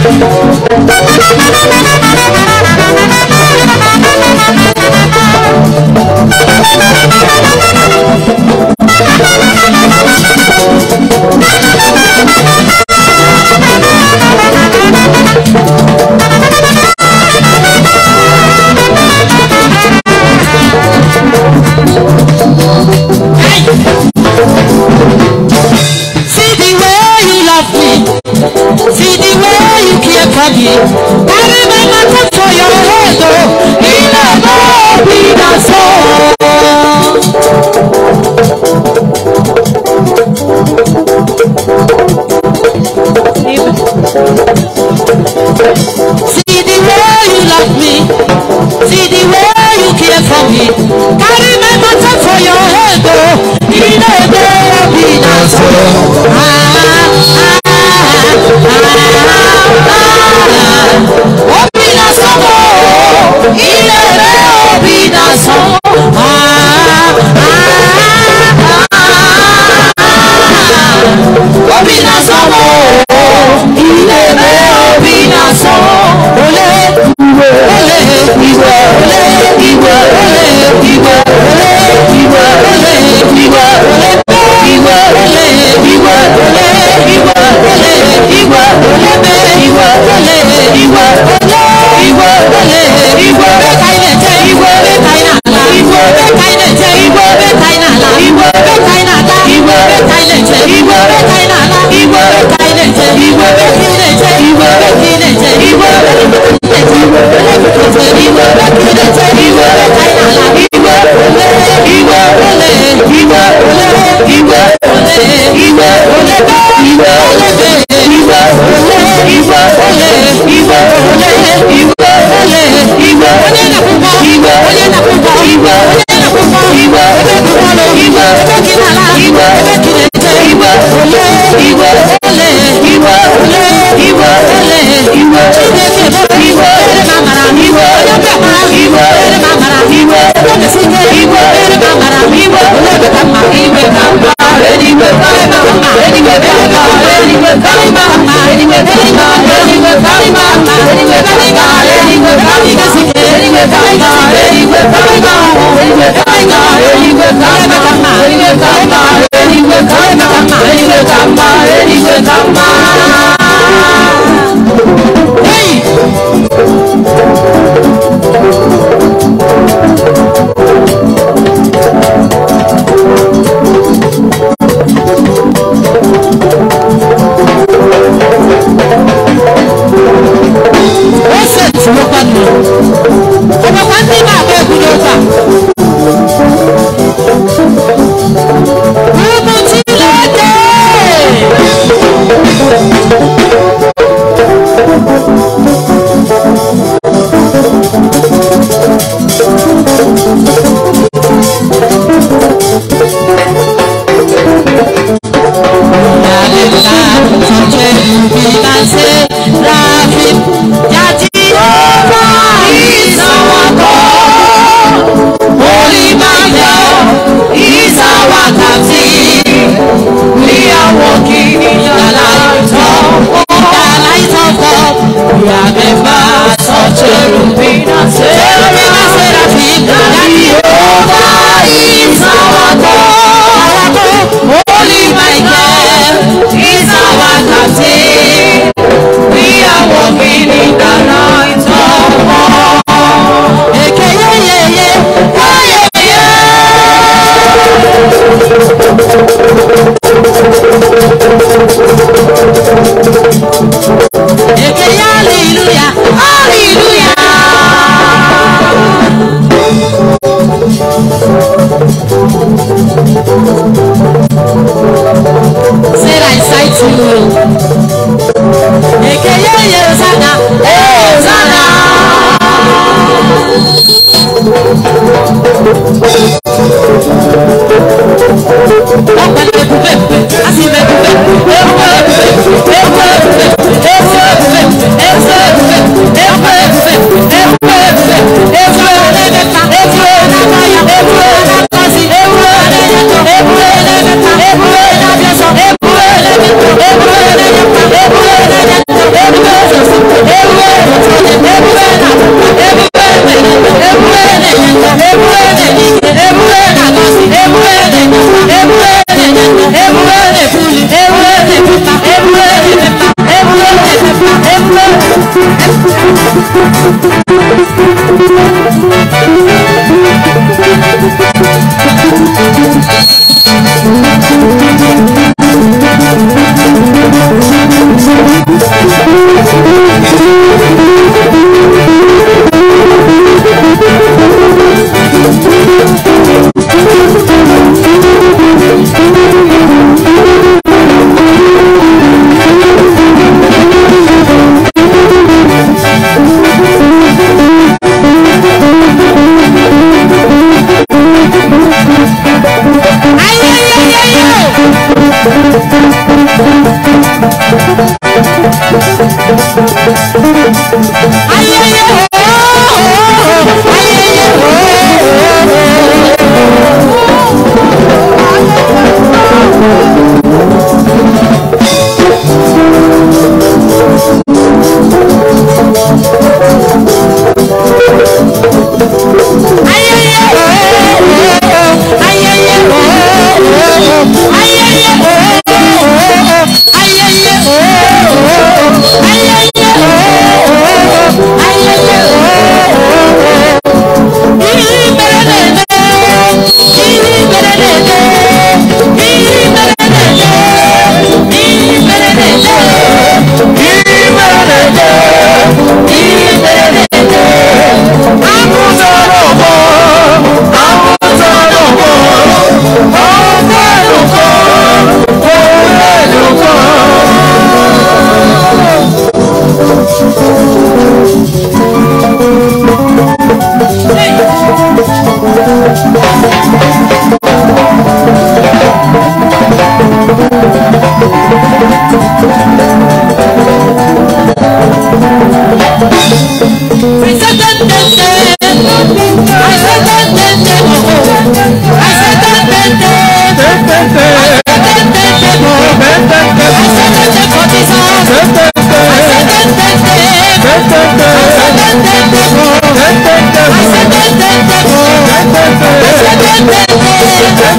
Thank you. olè ìwọ olè ìwọ olè ìwọ olè ìwọ chineke bụ ìwọ olè mamara ìwọ onye mmekpara ìwọ olè mamara ìwọ olè ìwọ olè mamara ìwọ olè beta mma ìwọ ka mma edigbo karịma mma edigbo karịma mma edigbo karịma mma edigbo karịma mma edigbo karịma mma edigbo karịma mma edigbo karịma mma edigbo karịma mma edigbo karịma mma edigbo karịma mma edigbo karịma mma edigbo karịma mma edigbo karịma mma 人民的党吗？人民的党 ayayo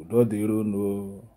o dodeiro no